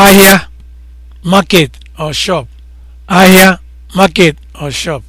ahịa market or shop ahịa market or shop